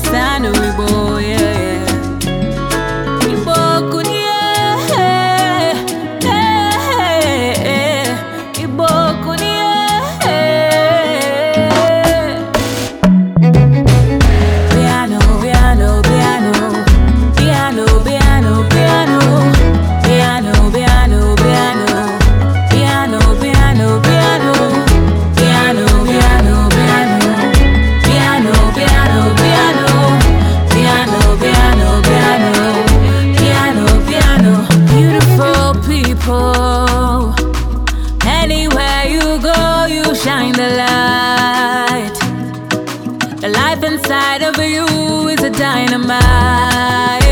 kwa no wigbo W is a dynamite.